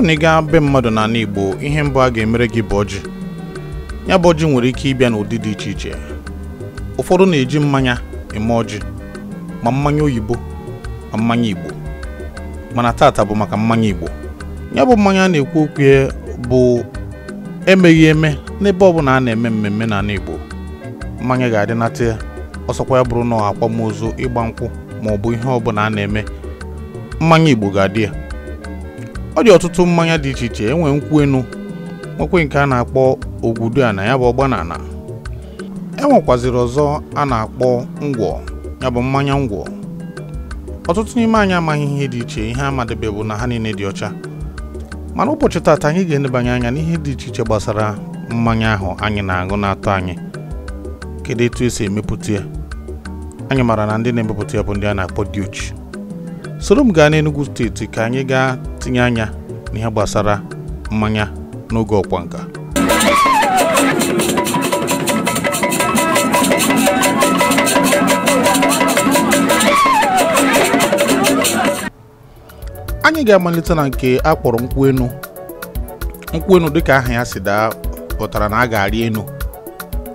bụrụ na ị gaa be mmadụ n'ala Igbo ihe mbụ a ga-emere gị bụ ọjị ya bụ ọjị nwere ike ịbịa n'ụdị dị iche iche ụfọdụ na-eji mmanya eme ọjị ma mmanya oyibo ma mmanya Igbo mana tata bụ maka mmanya Igbo ya bụ mmanya na-ekwu okwu ya bụ emeghị eme n'ebe ọ bụla a na-eme mmemme n'ala Igbo mmanya ga-adị nata ya ọsọkwa ya bụrụ na akwamozu ịgba nkwụ ma ọ bụ ihe ọbụla a na-eme mmanya Igbo ga-adị ya ọ dị ọtụtụ mmanya dị iche iche enwe nkwu enu nwekwe nke a na-akpọ ogudu ana ya bụ e enwekwaziri ọzọ a na-akpọ ngwọ ya bụ mmanya ngwọ ọtụtụ n'ime anyị amaghị ihe dị iche ihe amadebe bụ na ha niile dị ọcha mana ụbọchị taata anyị ga-edebanye anya n'ihe dị iche iche gbasara mmanya ahụ anyị na-aṅụ na-atọ anyị kedu etu esi emepụta ya anyị maara na ndị na-emepụta ya bụ ndị a na-akpọ diochi soro m gaa n'Enugu steeti ka anyị gaa tinye anya n'ihe gbasara mmanya n'oge ọkwa nka anyị ga-amalite na nke akpọrọ kpọrọ nkwụ enu dịka aha ya si daa pụtara na a ga-arị enu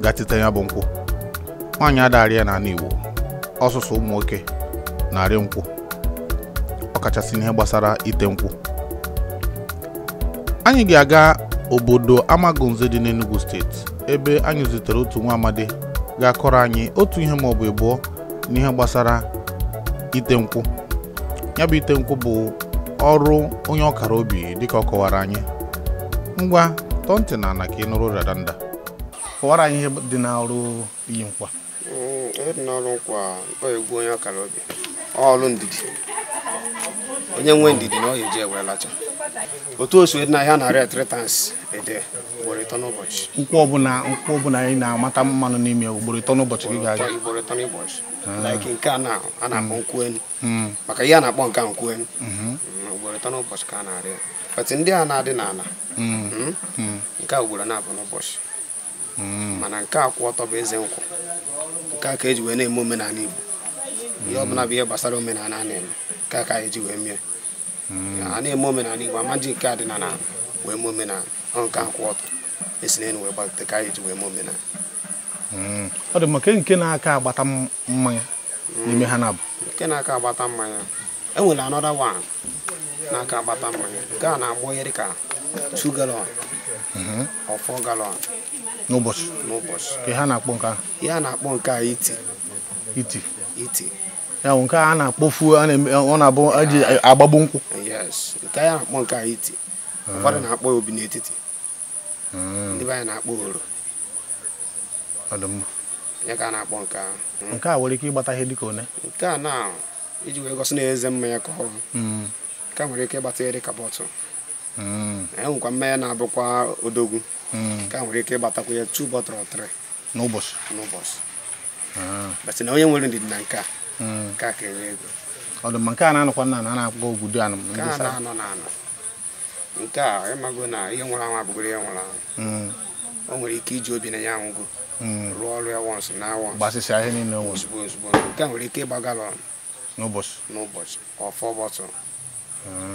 gatite ya bụ nkwụ nwaanyị adarị ya n'ala Igbo ọsụsụ ụmụ nwoke na-arị nkwụ ọkachasị n'ihe gbasara ite nkwụ anyị ga-aga obodo Amagunze dị n'Enugu steeti ebe anyị zutere otu nwa amadi ga-akọrọ anyị otu ihe maọbụ ịbụọ n'ihe gbasara ite nkwụ ya bụ ite nkwụ bụ ọrụ onye ọkara obi dịka ọ kọwara anyị ngwa tọọ na ana ka ị nụrụ kọwara anyị ihe dị n'ọrụ nkwa ọrụ ndidi onye nwe ndidi na oyi ji ewee lacha otu osu na ya narị atritans ede ugboro ịtọ n'ụbọchị nkwụ ọbụla nkwụ ọbụla anyị na-amata mmanụ n'ime ugboro ịtọ n'ụbọchị gị ga-aga ugboro ịtọ n'ụbọchị ah. like nke a na-akpọ hmm. nkwụ enu hmm. maka ihe a na-akpọ nke a nkwụ enu hmm. ugboro ịtọ n'ụbọchị ka a na-arị ya but ndị a na-adị n'ala nke a ugboro na-abụ n'ụbọchị mana nke a kwụ ọtọ bụ eze nkwụ nke a ka eji wee na-eme omenala Igbo ihe ọbụla bụ ihe gbasara omenala a na-eme nke ka anyị e ji wee mee hmm. a na-eme omenala Igbo ama ji nke na wee mee omenala ọ nke akwụ ọtọ esi n'elu wee gbapụta ka anyị ji wee mee omenala hmm. ọ dị maka nke na-aka agbata mmanya hmm. n'ime ha na-abụ nke na-aka agbata mmanya e nwere anọda wan na-aka agbata mmanya nke a na-agba dịka 2 galọn galọn n'ụbọchị n'ụbọchị ihe a na-akpọ nke a ihe a na-akpọ nke a iti iti ya eh, nke a na-akpọfu eh, ọ na-abụ eji agbagbo nkwụ nke a na-akpọ nke anyị iti ụfọdụ na-akpọ obi n'etiti hmm. ndị be anyị na-akpọ oro ya ka a na-akpọ nke ahụ nke a nwere ike ịgbata ihe dịka one nke a na iji wee gosi na eze mmanya ka ọrụ hmm. nke a nwere ike ịgbata ihe dịka bọtụl hmm. enwekwa mmanya na-abụkwa odogwu nke a nwere ike ịgbatakwa ya tu bọtụl tri n'ụbọchị n'ụbọchị basi na onye nwere ndidi na nke a ka kere ego ọdụm nke a na-anọkwa nna na na-akpọ ogudo anụ ndị sara nke a ịmago na ihe nwụrụ anwụ abụgoro ihe nwụrụ anwụ hmm. o nwere ike iji obi na ya anwụgo hmm. rụọ ọrụ ya wọnsụ na awọ gbasịsịa ihe niile nwere ozugbo ozugbo nke a nwere ike ịgba galọn n'ụbọchị n'ụbọchị ọfọ bọtụl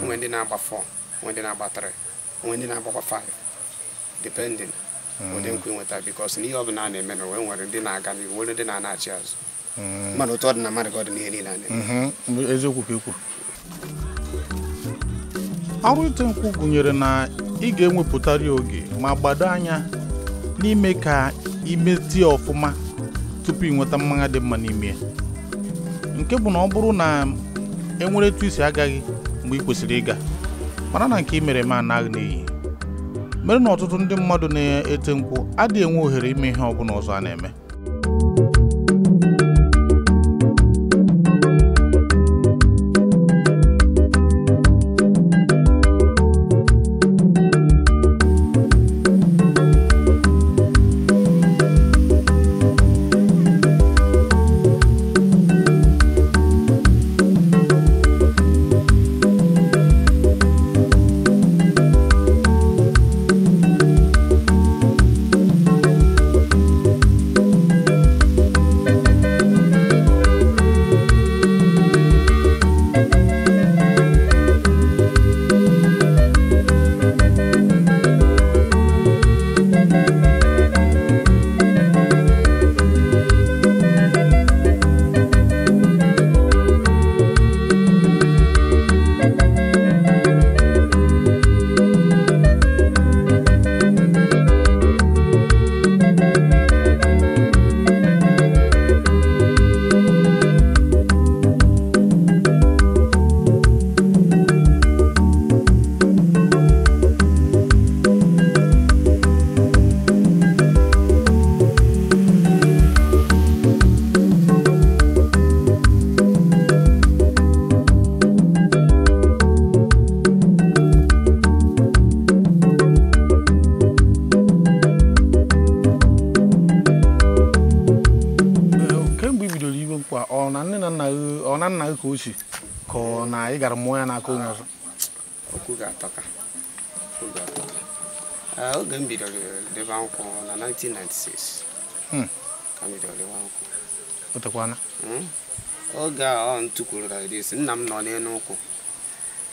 onwe ndị na-agba fọ onwe ndị na-agba trị onwe ndị na-agbakwa faịv depending hmm. ụdị nkwa nweta bikos n'ihe ọ bụla a na-eme na nwere ndị na-aga n'ihu nwere ndị na-anachi azụ otu ọ dị na mmadụ ka ọ dị n'ihe niile anya eziokwu ekwu ọrụ ite nkwụ gụnyere na ị ga-enwepụtari oge ma gbado anya n'ime ka imetie ọfụma tupu ị nweta mmanya dị mma n'ime ya nke bụ na ọ bụrụ na enwere etu isi agaghị mgbe ị kwesịrị ịga mara na nke ị mere m anaghị n'iyi mere na ọtụtụ ndị mmadụ na-ete nkwụ adịghị enwe ohere ime ihe ọbụla ọzọ a na-eme aka uchi ka ọ na ị gara mụọ ya n'aka onye ọzọ oge m bidoro debe akwụkwọ na 1996 ka m bidoro debe akwụkwọ otekwana oge a ọ ntụkwuru radios nna m nọ n'elu ụkwụ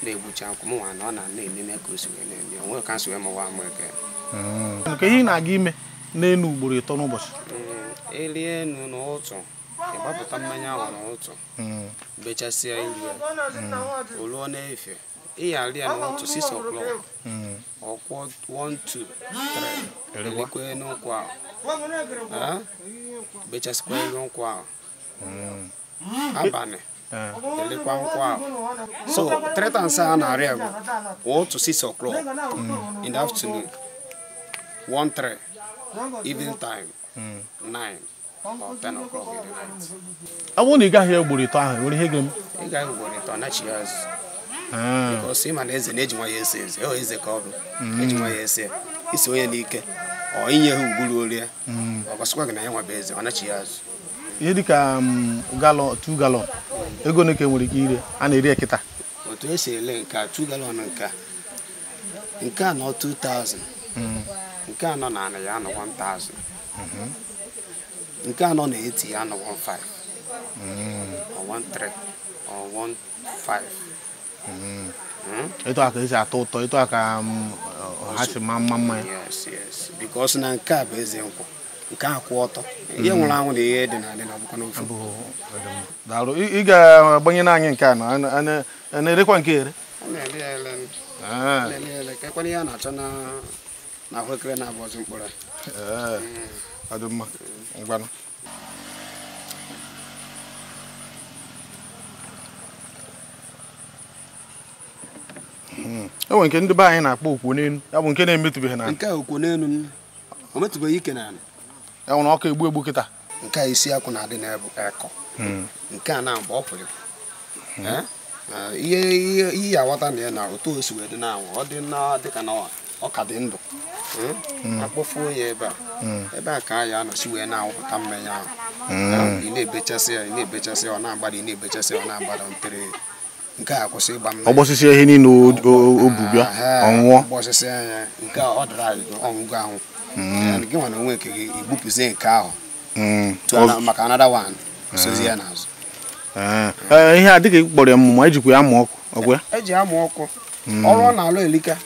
na-egbucha nkwụ m nwa na ọ na-ana ememe ka osi wee na-eme onwe ka nsogbu mụwa amụ eke nke ihe na-aga ime n'elu ugboro ịtọ n'ụbọchị elie elu n'ụtụ ịgbapụta mmanya ahụ n'ụtụ hmm. bechasịa nri ya hmm. o ruo n'efe ịyarị ya n'ụtụ 6 o'clock ọkwọ 1 2 n'ụkwụ ahụ bechasịkwa elu nkwụ ahụ hmm. abalị elekwa nkwụ ahụ so tretans a na-arị ya bụ otu in the afternoon 1 3 evening time 9 ọ bụrụ na ị gaghị egboro ahụ nwere ihe m ma ọ bụ eji nwa ya ese isi onye n'ike ọ inye ha ugburu orie hmm. ọ gwasikwa gị na ya nwabụ eze ọ nachi ya azụ ihe dịka galọn tu galọn ego e nwere ike ire a na-eri ekịta otu esi ele nke tu galọn nke nke anọ 2000 hmm. nke anọ na anị ya 1000 nke anọ na-eti ya na 15 ọ 13 ọ 15 ịtụ aka esi atọ ụtọ ịtụ aka um, ha si ma mma mma ya na nke a bụ eze nkwụ nke a kwụ ọtọ ihe nwụrụ anwụ na ihe dị na adị na ọbụkwana ofu ị ga-agbanye um, n'anyị nke a na na-erekwa nke ere na-ele ele ka ekwana ihe a na-achọ na ahụekere na-abụ ọzọ mkpọrọ dị mma ngwanụ enwere nke ndị be anyị na-akpọ okwo n'elu ya bụ nke na-emetụbeghị na nke okwo n'elu m o metụbeghị ike na ala ya nwere ọkụ egbu egbu kịta nke a isi akwụ na-adị n'ebe ekọ nke a na-agba ọpụrụ ihe ihe aghọta na ya na otu o si wee dị na anwụ ọ dị na dịka n'ọwa ọ ka dị ndụ hmm. akpọfuo ya ebe a hmm. ebe a ka a ya anọchi wee na-awụpụta mmanya ahụ hmm. ị na-ebechasị ya ị na-ebechasị ya ọ na-agbada ị na-ebechasị ya ọ na-agbada ntere nke a kwụsị ịgba mmanya ọgbọsịsị ehi niile obubịa ọnwụọ ọgbọsịsị anya nke a ọ dara anyị ọṅụgụ ahụ gị nwere onwe nke gị igbupụzie nke ahụ maka another one sozi ya n'azụ eh, eh, ihe a dịka kpọrọ ya mmụma ejikwa ya ama ọkụ ọgwa eji e ama ọkụ ọrụ ọ na-alụ elika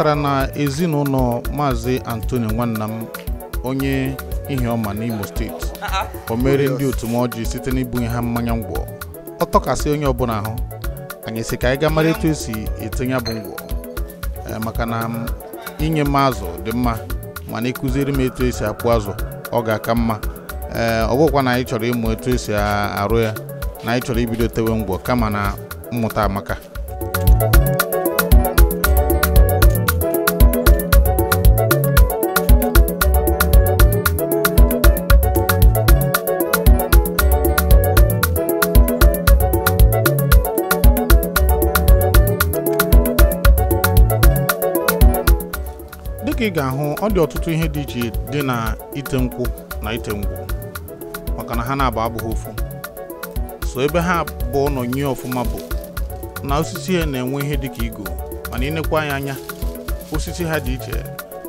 pụtara na ezinụlọ maazị antoni nwanna m onye ihe ọma n'Imo steeti o mere ndị otu m ọjị site n'ibu ha mmanya ngwọ ọ tọkasị onye ọbụla ahụ anyị si ka anyị gaa mara etu esi etinye bụ ngwọ eh, maka na mm, inye m azụ dị mma mana ịkụziri m etu esi akpụ azụ ọ ga-aka mma ee eh, ọ bụkwa na anyị chọrọ ịmụ etu esi arụ ya na anyị chọrọ ibido tewe ngwọ kama na mmụta amaka ị ga-ahụ ọ dị ọtụtụ ihe dị iche dị na ite nkwụ na ite ngwụ maka na ha na-abụ abụghị ofu so ebe ha abụọ nọ nye ọfụma bụ na osisi ha na-enwe ihe dịka igo mana ịnekwa ya anya osisi ha dị iche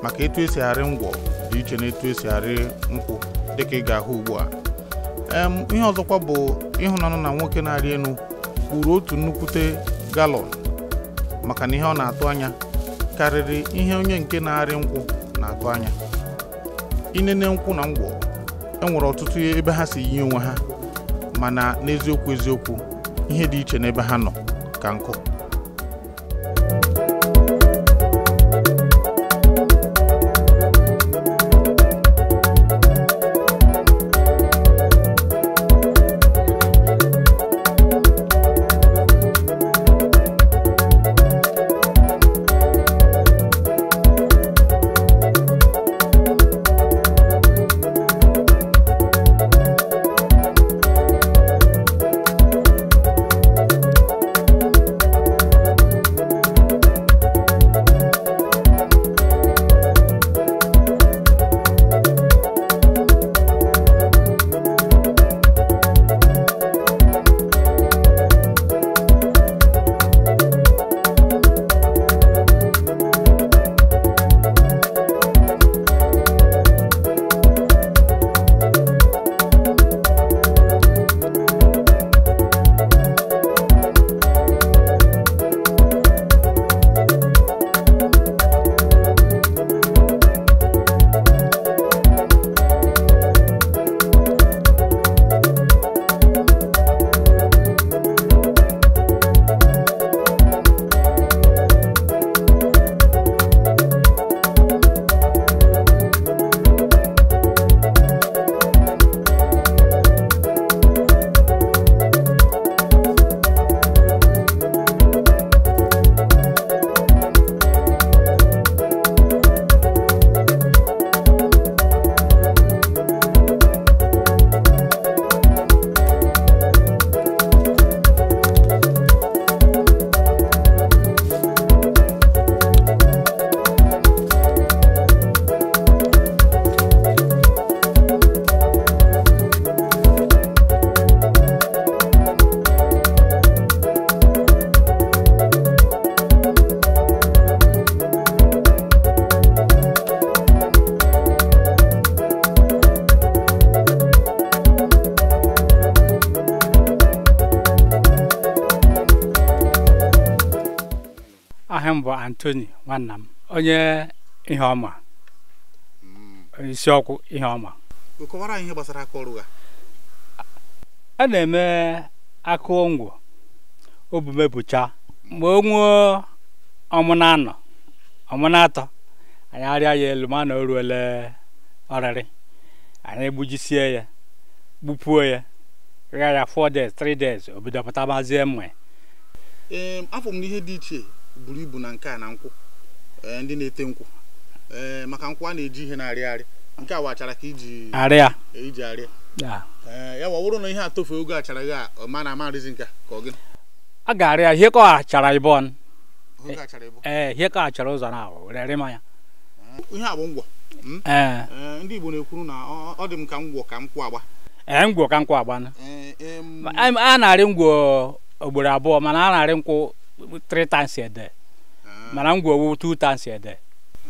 maka etu esi arị ngwọ dị iche na etu esi arị nkwụ dịka ị ga-ahụ ugbu a ihe ọzọkwa bụ ịhụnanụ na nwoke na-arị enu kpuru otu nnukwute galọn maka na ihe ọ na-atụ anya karịrị ihe onye nke na-arị nkwụ na-atụ anya inene nkwụ na ngwọ enwere ọtụtụ ebe ha si yi onwe ha mana n'eziokwu eziokwu ihe dị iche n'ebe ha nọ ka nkụ Tony nwanna m onye ihe ọma hmm. isiokwu ihe ọma kọwara ihe gbasara aka ọrụ a na-eme akụ ngwụ obumebụcha mgbe onwe ọmụna anọ ọmụna atọ anyị arịa ya elu mana o ruole ọrịrị anyị egbujisie ya gbupuo ya rịa ya 4 days 3 days obido pụta mazie mwe afọ m n'ihe dị iche buru ibu na nke a na nkwụ eh, ndị na-ete nkwụ eh, maka nkwụ a na-eji ihe na-arị arị nke a wachara ka iji arịa e, iji arịa ya wa eh, wụrụ na ihe atofe oge achara gị a ma na ama rịzi nke ka ọ gị a ga-arị ihe ka achara ibọn ee ihe ka achara ụzọ na ahụ rere manya ihe a bụ ngwọ hmm? ndị Igbo na-ekwuru na ọ dị m ka ngwọ ka nkwụ agba ee ngwọ ka nkwụ agba a na-arị ngwọ ogboro abụọ mana a na-arị nkwụ three times a de. Ah. mana m gwowo two times a day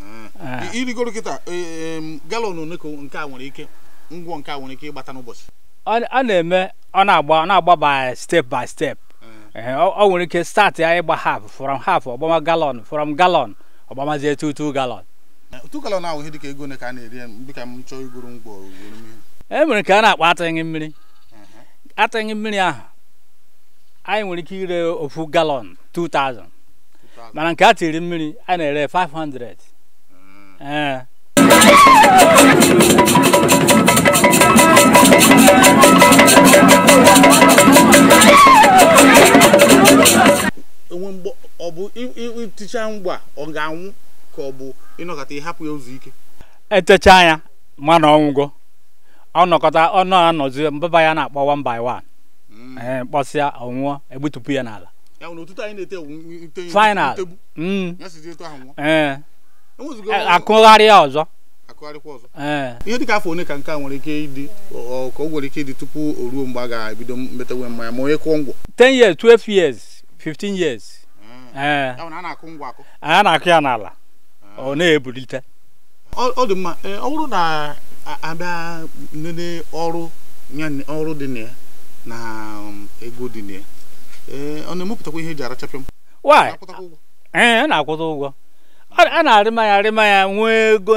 ah. ah. irigoro kịta e, galọn one ka nke a nwere ike ngwọ nke a nwere ike ịgbata n'ụbọchị ọ na-eme ọ na-agba na-agba by step by step eh, ọ nwere ike start ya ịgba half from half ọgbama galọn from galọn ọgbamazie two two galọn eh, two galọn ahụ hedi dịka ego ole ka na-eri dịka m chọọ igoro ngwọ e nwere nke a na-akpọ atịghị mmiri atịghị mmiri ahụ anyị nwere ike ire ofu galọn 2000 mana nke a tiri mmiri a na-ere 500 hmm. ee ọ bụ ticha ngwa ọ ga-anwụ ka ọ bụ ịnọkọta ịhapụ ya ozu ike etecha ya mana ọnwụgo ọ nọkọta ọ na-anọzi mbaba ya na-akpọ one by one hmm. ee kpọsịa ọnwụọ egbutupu ya n'ala final akụgharịa ọzọ ihe dịka afọ one ka nke a nwere ike ịdị ka ọ nwere ike ịdị tupu o ruo mgbe ah. eh. ah, ah. eh, a ga-ebido metewe mmanya ma onye kụọ ngwọ 10 years 12 years 15 years a na-akụ ya n'ala ọ na-ebulite ọ dị mma ọ bụrụ na abịa nlele ọrụ ya ọrụ dị na ya na ego dị na ya Eh, ọ na-emepụtakwa ihe eji arachapịa m ee na-akwụta ụgwọ a na-arị manya arị manya nwee ego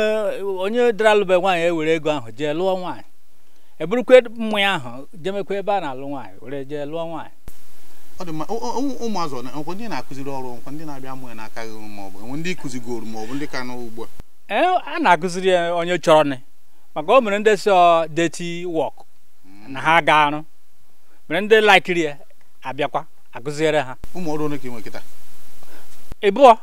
onye daralụbe nwaanyị ewere ego ahụ jee lụọ nwaanyị eburukwa mmụ ya ahụ jemekwa ebe a na-alụ nwaanyị were jee lụọ nwaanyị ụmụazụ nkwe ndị na-akụziri ọrụ nkwe ndị na-abịa amụ ya n'aka gị maọbụ enwe ndị ịkụzigoro maọbụ ndị ka n'ugbu a ee eh, a na-akụziri ya onye chọrọ nị maka o mere ndị sọ deti wọk mm. na ha ga arụ mere ndị laikiri ya abịakwa agụziere ha ụmụ ọrụ ole ka ị nwere kịta ịbụọ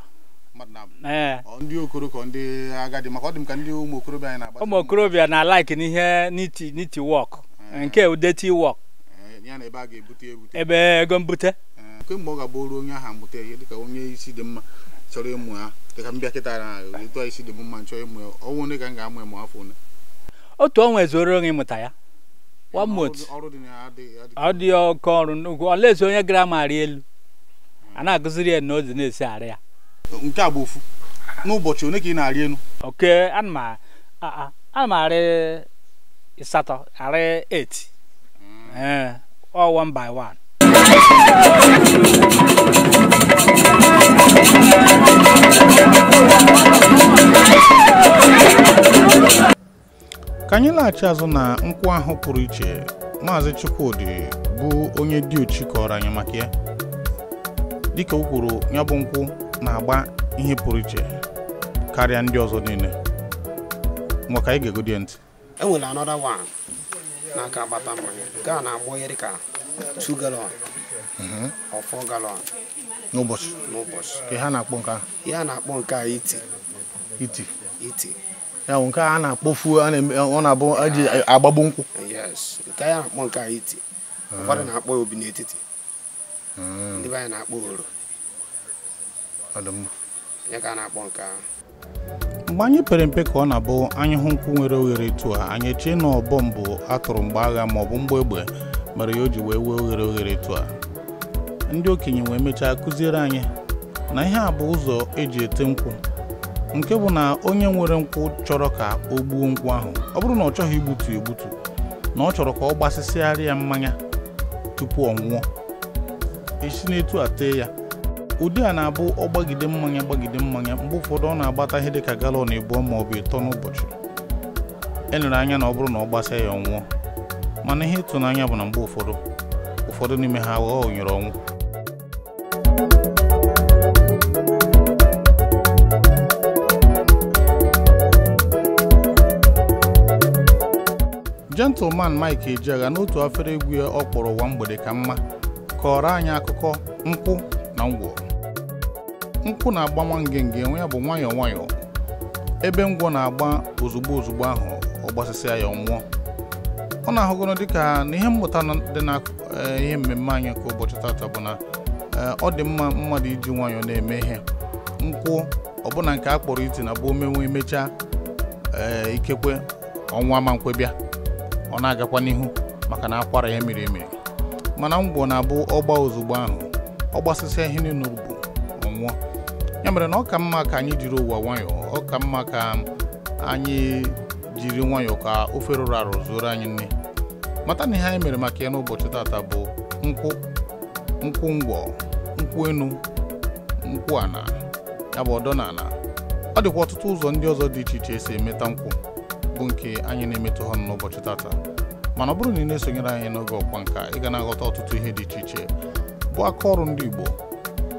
ndị okorobịa ndị agadi maka ọ dị m ka ndị ụmụ okorobịa anyị na-agba ụmụ okorobịa na-alaiki n'ihe n'iti n'iti wọk nke udeti wọk ya na ebe a ga-ebute ebute ebe ego mbute nke kemgbe ọ ga-agba onye aha mbute ihe dịka onye isi dị mma chọrọ ịmụ ha dịka m bịa kịta na etu isi dị mma chọrọ ịmụ ya ọnwụ onye ka m ga-amụ ya afọ one. otu ọnwa ezuoro onye ịmụta ya one month ọ dị oke ọrụ nnukwu onye gara marị elu hmm. a na-agụziri ya na ozi na-esi ya nke a bụ ofu n'ụbọchị one ka ị na-arị elu oke ana m arị asatọ hmm. all one by one Thank you. ka anyị laghachi azụ na nkwụ ahụ pụrụ iche maazị Chukwudi bụ onye diochi kọrọ anyị maka ya dịka o kwuru ya bụ nkwụ na-agba ihe pụrụ iche karịa ndị ọzọ niile maka anyị ga-egodi ntị enwere anoda wan n'aka agbata mmanya nke a na-agba ihe dịka 2 galọn ọ 4 galọn n'ụbọchị n'ụbọchị ihe a na-akpọ nke a. ihe a na-akpọ nke a iti iti iti ya nke a na akpofu ọ na-abụ eji agbagbu nkwụ nke akpọ nke anyị ụfọdụ na-akpọ obi n'etiti hmm. ndị be anyị na-akpọ oro a mgbe anyị pere mpe ka ọ na-abụ anyị hụ nkwụ nwere oghere etu a anyị echee na ọbọ mbụ atụrụ mgbe agha ma ọ bụ mgbe egbe mere ya o ji wee wee oghere oghere etu a ndị okenye wee mechaa kụziere anyị na ihe a bụ ụzọ eji ete nkwụ nke bụ na onye nwere nkwụ chọrọ ka o gbuo nkwụ ahụ ọ bụrụ na ọ chọghị igbutu egbutu na ọ chọrọ ka ọ gbasịsịgharị ya mmanya tupu ọ nwụọ esi n'etu a tee ya ụdị a na-abụ ọgbagide mmanya gbagide mmanya mgbe ụfọdụ ọ na-agbata ihe dịka galọn ịbụọ ma ọ bụ ịtọ n'ụbọchị elere anya na ọ bụrụ na ọ gbasa ya ọ nwụọ mana ihe ịtụnanya bụ na mgbe ụfọdụ ụfọdụ n'ime ha aghọghọ nyere ọnwụ Gentleman Mike Ejeagha n'otu afere egwu ya ọ kpọrọ ụwa mgbede ka mma kọrọ anyị akụkọ nkwụ na ngwọ nkwụ na-agbanwa ngenge nwe ya bụ nwayọọ nwayọọ ebe ngwọ na-agba ozugbo ozugbo ahụ ọ gbasasịa ya nwụọ ọ na-ahụgoro dịka na ihe mmụta dị na eh, ihe mmemme anyị nke ụbọchị tata bụ na eh, ọ dị mma mmadụ iji nwayọọ na-eme ihe nkwụ ọbụna nke a kpọrọ iti na bụ omenwe emechaa eh, ikekwe ọnwa ma nkwebịa ọ na-agakwa n'ihu maka na akwara ya miri emi mana ngwọ na-abụ ọgba ozugbo ahụ ọ gbasịsịa ihe niile bụ ọnwụọ ya mere na ọ ka mma ka anyị jiri ụwa nwayọọ ọ ka mma ka anyị jiri nwayọọ ka ofe rụrụ arụ zụrụ anyị nne mata na ihe anyị mere maka ya n'ụbọchị tata bụ nkwụ nkwụ ngwọ nkwụ enu nkwụ ana ya bụ ọdọ na ana ọ dịkwa ọtụtụ ụzọ ndị ọzọ dị iche iche esi emeta nkwụ bụ nke anyị na-emetụ ha n'ụbọchị tata mana ọ bụrụ na ị na-esonyere anyị n'oge ọkwa nka ị ga na-aghọta ọtụtụ ihe dị iche iche bụ aka ọrụ ndị Igbo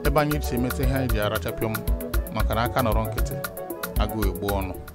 ebe anyị si emeta ihe anyị ji arachapịọm maka na aka nọrọ nkịtị agụ egbu ọnụ